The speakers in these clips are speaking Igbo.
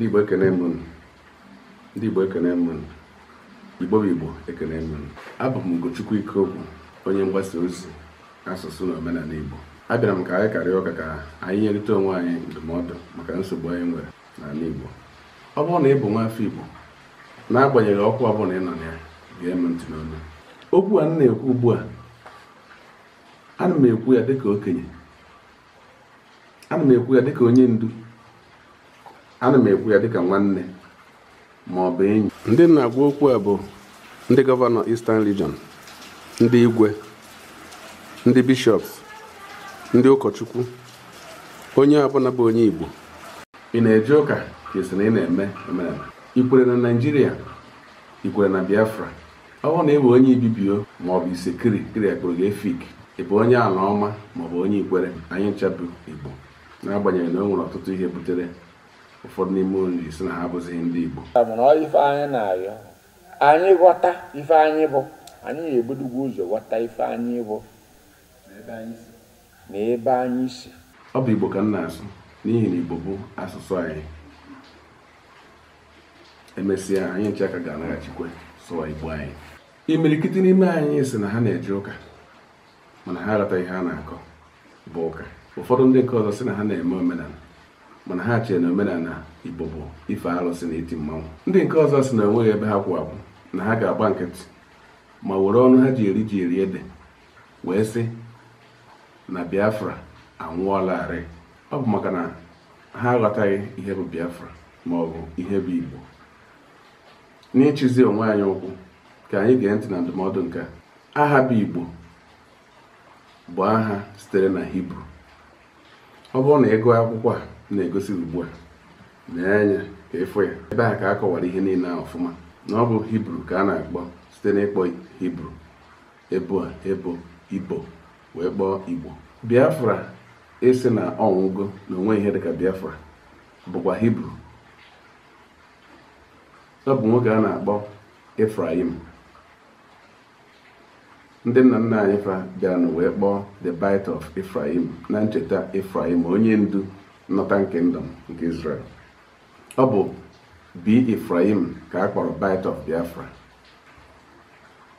ndị Igbo ekene m ndị Igbo ekene m Igbo bụ Igbo ekene m abụ m Ugochukwu Ikeokwu onye mgbasa ozi asụsụ na omenala Igbo abịara m ka anyị karịa ụka ka anyị nyerịta onwe anyị ndụmọdụ maka nsogbu anyị nwere n'ala Igbo ọ bụrụ na ị bụ nwa afọ Igbo n'agbanyeghị ọkụ ọ bụla ị nọ na ya gee m ntị n'olu okwu a m na-ekwu ugbu a ana m ekwu ya dịka okenye ana m ekwu ya dịka onye ndu ana m ekwu ya dịka nwanne ma ọ bụ enyi ndị na-agwa okwu a bụ ndị gọvanọ Eastern Region ndị igwe ndị bishops ndị ụkọchukwu onye ọbụla bụ onye Igbo ị na-eje ụka ka na ị na-eme emereme ikwere na Naịjirịa ikwere na Biafra ọ na ewe onye ibibio ma ọ bụ isekiri kiri akpụrụ gị efik ị bụ onye ala ọma maọbụ onye ikwere anyị ncha igbo na n'agbanyeghị na o nwere ọtụtụ ihe butere ụfọdụ n'ime unu si na ha abụzighị ndị Igbo ife anyị na-arịọ anyị ghọta ife anyị bụ anyị na-ebudogwu ụzọ ghọta ife anyị bụ na ebe anyị si ọ bụ Igbo ka m na-asụ n'ihi na Igbo bụ asụsụ anyị emesịa anyị nche aka ga-anaghachikwe sụwa Igbo anyị imirikiti n'ime anyị si na ha na-eje ụka mana ha ihe ha na-akọ bụ ụka ụfọdụ ndị nke ọzọ si na ha na-eme omenala mana ha chere na omenala igbo bụ ife arụsị na iti mmanwụ ndị nke ọzọ si na enweghị ebe ha kwụ na ha ga-agba nkịtị ma were ọnụ ha ji eri ji eri ede wee sị na biafra anwụọlarị ọ bụ maka na ha aghọtaghị ihe bụ biafra ma ọ bụ ihe bụ igbo n'ịchịzi onwe anyị ụkwụ ka anyị gee ntị na ndụmọdụ nke aha bụ igbo bụ aha sitere na hibru ọ bụrụ na ị gụọ akwụkwọ a na-egosi ugbu a lee anya ka ịfụ e ya ebe a ka a kọwara ihe niile a ọfụma na ọ bụ hibru ka a na-akpọ site n'ịkpọ hibru ebo a ebo ibo wee kpọọ igbo biafra esi na ọnwụgo na onwe ihe dịka biafra bụkwa hibru ọ bụ nwoke a na-akpọ efraim ndị nna nna anyị fa bịara na wee kpọọ the bite of efraim na ncheta efraim onye ndu Northern Kingdom nke Israel. Ọ bụ B. Ifraim ka a kpọrọ Bight of Biafra.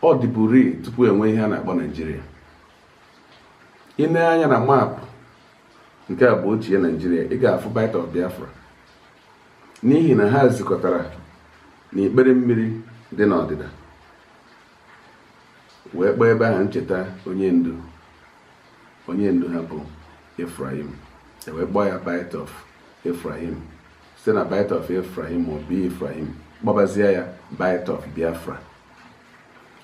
Ọ dịburi tupu enwe ihe a na-akpọ Naijiria. Ị anya na maapụ nke a bụ ochie Naijiria ị ga-afụ Bight of Biafra n'ihi na ha zikọtara na ikpere mmiri dị n'ọdịda wee kpọọ ebe ahụ ncheta onye ndu onye ndu ha bụ Ifraim wee kpọọ ya bite of Ephraim site na bite of Ephraim ma ọ bụ kpọbazie ya bite of Biafra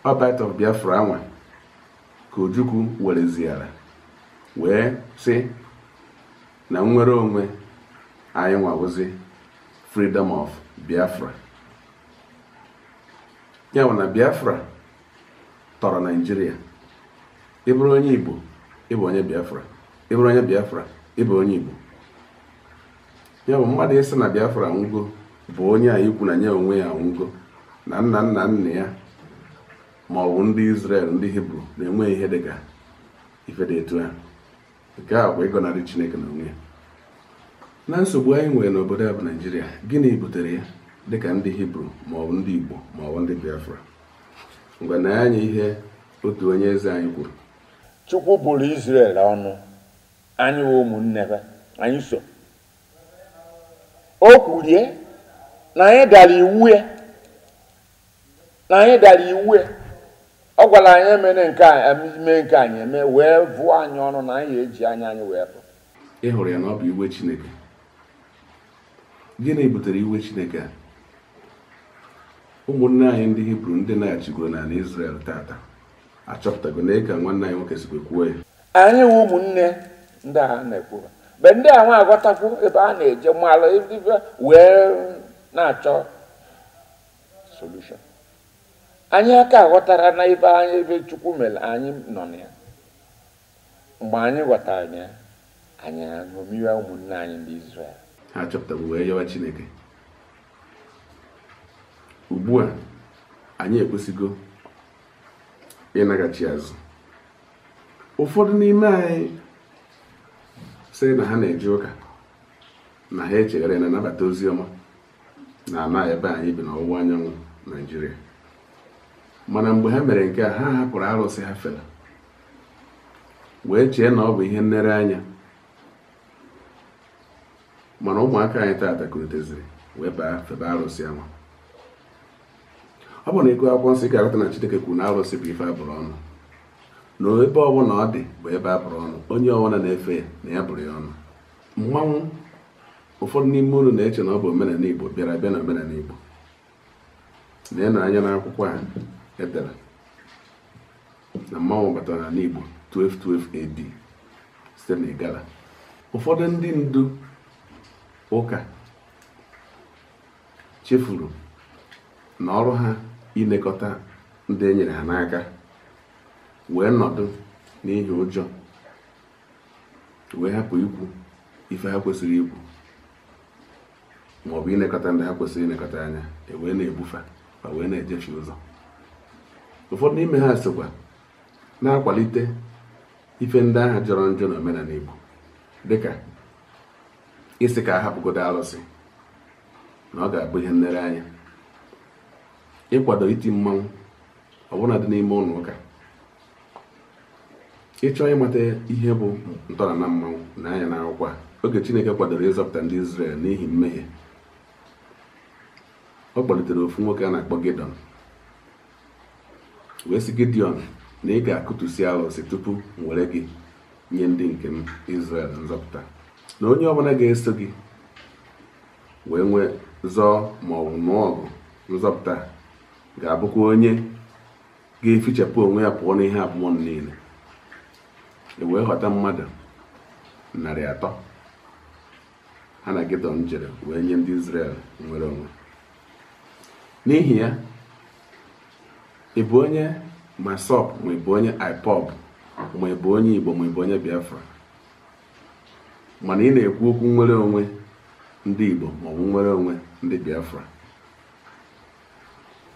ọ bite of Biafra anwa ka Ojukwu wereziara wee sị na nnwere onwe anyị nwawụzi freedom of Biafra ya bụ na Biafra tọrọ Naịjirịa ịbụrụ onye Igbo ịbụ onye Biafra ịbụrụ onye Biafra ịbụ onye Igbo ya bụ mmadụ ịsị na Biafra nwugo bụ onye a ikwu na ya onwe ya nwugo na nna nna nna ya ma ọ bụ ndị Israel ndị Hibru na-enweghị ihe dịka ife dị etu ha nke a bụ ịgọnarị Chineke na onwe ya na nsogbu anyị nwere n'obodo a bụ Naịjirịa gịnị butere ya dịka ndị Hibru ma ọ ndị Igbo ma ọ ndị Biafra mgbe na anya ihe otu onye eze anyị kwuru Chukwu bụrụ Izrel ọnụ anyị ụmụnne be anyị so o kwurie na anyị dara iwu ya e. na anyị dara iwu ya e. ọ gwara anyị emere nke a mee nke anyị eme wee vụọ anyị ọnụ na anyị eji anya anyị wee pụ ị hụrụ ya na ọ bụ iwe Chineke gịnị butere iwe Chineke a ụmụnne anyị ndị Hibru ndị na-achịgoro n'ala Izrel tata achọpụtago na ị ka nwanne anyị nwoke sikwe kwuo ya anyị wụ ụmụnne ndị a na ekwu mgbe ndị a nwa aghọtakwu ebe a na-eje mmalụ ebe wee na-achọ solution anyị aka aghọtara na ebe anyị ebe chukwu mere anyị nọ na ya mgbe anyị ghọtara ya anyị ṅomiwe ụmụnne anyị ndị Izrel ha chọpụtara wee yọwa Chineke ugbu a anyị ekwesịgo ịnaghachi azụ ụfọdụ n'ime anyị sị na ha na eji ụka na ha echegharị na anabata ozi ọma na ala ebe anyị bi n'ọwụwa anyanwụ naijiria mana mgbe ha mere nke a ha hapụrụ arụsị ha fela wee chee na ọ bụ ihe anya mana ụmụaka anyị taata kuliteziri wee baa febe arụsị ama ọ bụ na ịgụ akwụkwọ nsị ga na chideke kwuru na arụsị bụ ife abụrụ ọnụ na ebe ọbụla ọ dị bụ ebe a bụrụ ọnụ onye ọbụla na-efe ya na ya bụrụ ya ọnụ mmanwụ ụfọdụ n'ime unu na-eche na ọ bụ omenala igbo bịara bịa na omenala igbo na anya n'akwụkwọ a edere na mmanwụ batara n'ala igbo 1212 AD site na igala ụfọdụ ndị ndu ụka chefuru na ọrụ ha ilekọta ndị e nyere ha n'aka wee nọdụ n'ihi ụjọ wee hapụ ikwu ife ha kwesịrị ikwu maọbụ ịnekọta ndị ha kwesịrị ịnekọta anya e wee na-ebufe ma wee na-ejefe ụzọ ụfọdụ n'ime ha sịkwa na-akwalite ife ndị agha jọrọ njọ na omenala Igbo dịka isi ka a hapụgodo alụsị na ọ ga-abụ ihe anya ịkwado iti mmanwụ ọbụna dị n'ime ụlọ ụka ịchọ ịmata ihe bụ ntọala na mmanwụ na anya na akwụkwọ oge chineke kwadoro ịzọpụta ndị Izrel n'ihi mmehie ọ kpọlitere ofu nwoke a na-akpọ gidon wee si Gidiọn na ị ga-akụtusi alụsị tupu m were gị nye ndị nke m Izrel nzọpụta na onye ọbụla ga-eso gị wee nwee zọọ ma nụọ ọgụ nzọpụta ga-abụkwa onye ga-efichapụ onwe ya pụọ n'ihe abụmọnụ niile e wee ghọta mmadụ narị atọ ha na geto m jere wee nye ndị Israel nwere onwe n'ihi ya ị onye masop ma ịbụ onye ipob ma ịbụ onye Igbo ma ịbụ onye Biafra mana ị na-ekwu okwu nwere onwe ndị Igbo ma ọ bụ nwere onwe ndị Biafra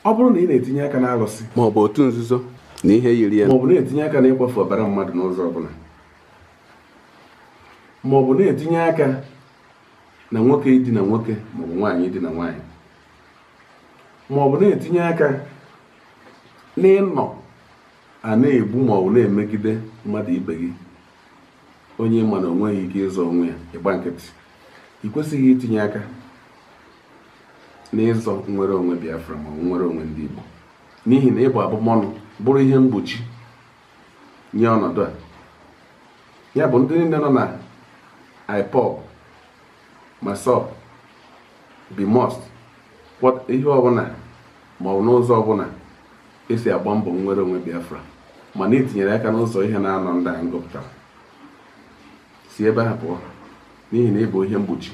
ọ bụrụ na ị na-etinye aka n'alụsị maọbụ otu nzuzo na ihe yiri ya ma na-etinye aka n'ịkwafu ọbara mmadụ n'ụzọ ọbụla ma ọ bụ na-etinye aka na nwoke idina nwoke ma ọ bụ nwaanyị idina nwaanyị ma ọ bụ na-etinye aka n'ịnọ a na-egbu ma ọ bụ na-emegide mmadụ ibe gị onye ma na o nweghị ike ịzọ onwe ya ịgba nkịtị ị kwesịghị itinye aka n'ịzọ nnwere onwe Biafra ma ọ bụ onwe ndị Igbo n'ihi na ịbụ abụmọnụ bụrụ ihe mgbochi nye ọnọdụ a ya bụ ndị niile nọ na ipob masop bimos ihe ọbụla maọbụ n'ụzọ ọbụla esi agba mbọ nwere onwe biafra mana itinyere aka n'ụzọ ihe na-anọ ndị anyị gụpụtara si ebe a pụọ n'ihi na ịbụ ihe mgbochi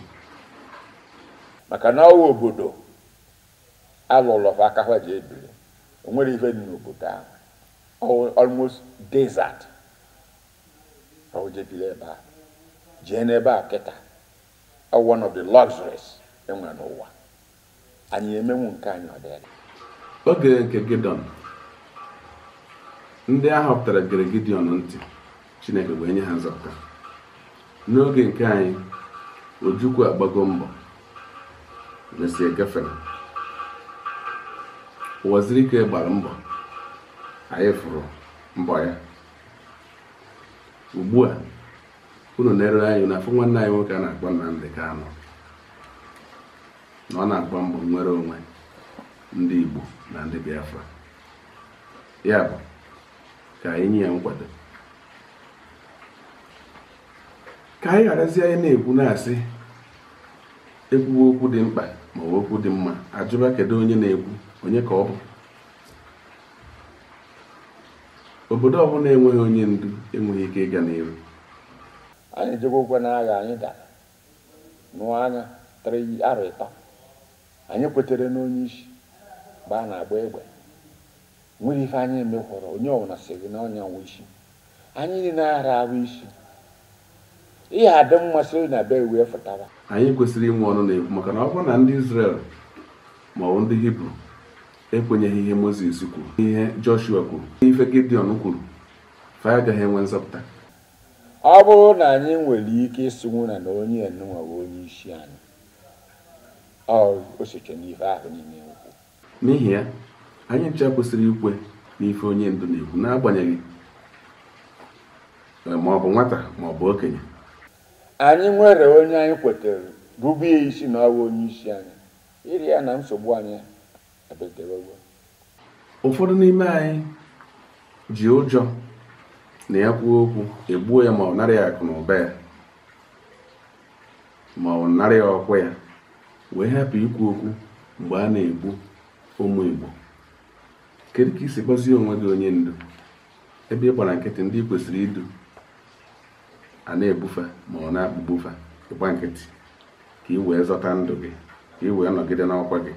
maka na ọwa obodo alụlụ aka ha ji ebiri o nwere ife dị n'obodo ahụ almost desert ka o jebiri ebe a jee n'ebe a kịta one of the luxuries enwere n'ụwa anyị emenwu nke anyị ọ dịrị oge nke gidon ndị a họpụtara gere ntị Chineke wee nye ha nzọpụta n'oge nke anyị Ojukwu agbago mbọ mesie gafere ụwaziri ike gbara mbọ anyị fụrụ mbọ ya ugbu a unu na anyị na afọ nwanne anyị nwoke a na-akpọ ka anọ na ọ na akpọ mbọ nwere onwe ndị Igbo na ndị Biafra ya bụ ka anyị nye ya nkwado ka anyị gharazie anyị na-ekwu na-asị ekwuwe okwu dị mkpa ma ọ okwu dị mma ajụba kedu onye na-ekwu onye ka ọ bụ obodo ọbụla enweghị onye ndu enweghị ike ịga n'ihu anyị ejekwa ụgwọ n'agha anyị dara nụọ anya tara arọ ịtọ anyị kwetere n'onye isi mgbe a na-agba egbe nwere ife anyị emekwara onye ọbụla si gị na ọnya nwe isi anyị na ara ahụ isi ihe adị mmasị na be wee fụtara anyị kwesịrị inwe ọnụ na-ekwu maka na ọ bụrụ na ndị Izrel ma ọ bụ ndị Hibru ekwenyeghị ihe Mozis kwuru ihe Joshua kwuru n'ife Gideon kwuru fa agaghị enwe nzọpụta ọ bụrụ na anyị nwere ike ịsụnwu na na onye nwa onye isi anyị osoche n'ife ahụ niile ukwu n'ihi ya anyị ncha kwesịrị ikwe n'ife onye ndu na-ekwu n'agbanyeghị e, ma ọ bụ nwata ma ọ bụ okenye anyị nwere onye anyị kwetara bụbu isi na ọwa onye isi anyị iri ya na nsogbu anyị ụfọdụ n'ime anyị ji ụjọ na ya kwuo okwu egbuo ya ma ọ nara ya akụ na ụba ya ma ọ narị ya ọkwa ya wee hapụ ikwu okwu mgbe a na-egbu ụmụ Igbo kedu ka isi kpọzie onwe gị onye ndu ebe ị gbara nkịtị ndị kwesịrị idu a na-ebufe ma ọ na bufe ịgba nkịtị ka ị wee zọta ndụ gị ka ị wee nọgide n'ọkwa gị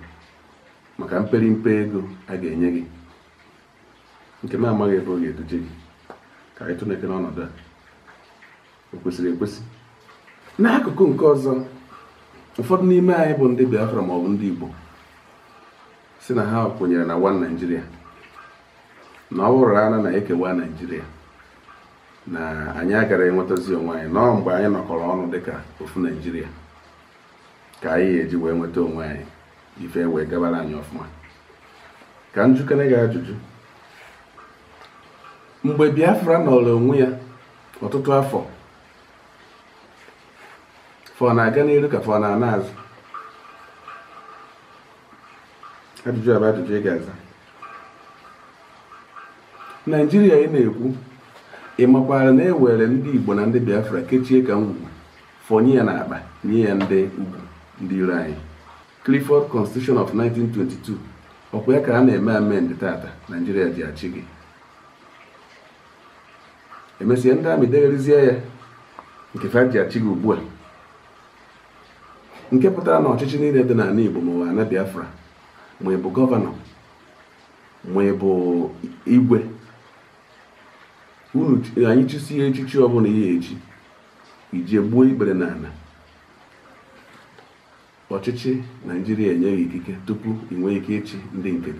maka mperimpe ego a ga-enye gị nke na-amaghị ebe ọ ga-eduje gị ka anyị tụneke n'ọnọdụ a o kwesịrị ekwesị n'akụkụ nke ọzọ ụfọdụ n'ime anyị bụ ndị Biafra ma ọ bụ ndị Igbo si na ha kwenyere na wan Naijiria na ọ bụrụ ana na-ekewa Naijiria na anyị agara enwetazi onwe anyị nọọ mgbe anyị nọkọrọ ọnụ dịka ofu Naijiria ka anyị ga-eji wee nweta onwe anyị ife wee gabara anyị ọfụma ka m jukere gị ajụjụ mgbe Biafra nọrọ onwe ya ọtụtụ afọ fọ na-aga n'elu ka fọ na-ana azụ ajụjụ abụ ajụjụ ị ga-aza naijiria ị na-ekwu ị makwara na ewere ndị igbo na ndị biafra kechie ka ngwugwu fọnye ya n'akpa nye ya ndị ndị iro anyị Clifford Constitution of 1922 ọkwa ya ka a na-eme amend tata Naijiria ji achị gị emesie ndị amị degharizie ya nke ji achị gị ugbu a nke pụtara na ọchịchị niile dị n'ala Igbo ma ụwa na Biafra ma gọvanọ ma igwe unu anyị chụsie echichi ọbụla ihe eji iji gbuo ikpere n'ala ọchịchị naijiria enyeghị ikike tupu ị nwee ike ịchị ndị nke